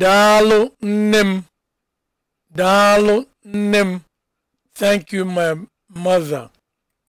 daalụ nne m daalụ nne m thank you my mother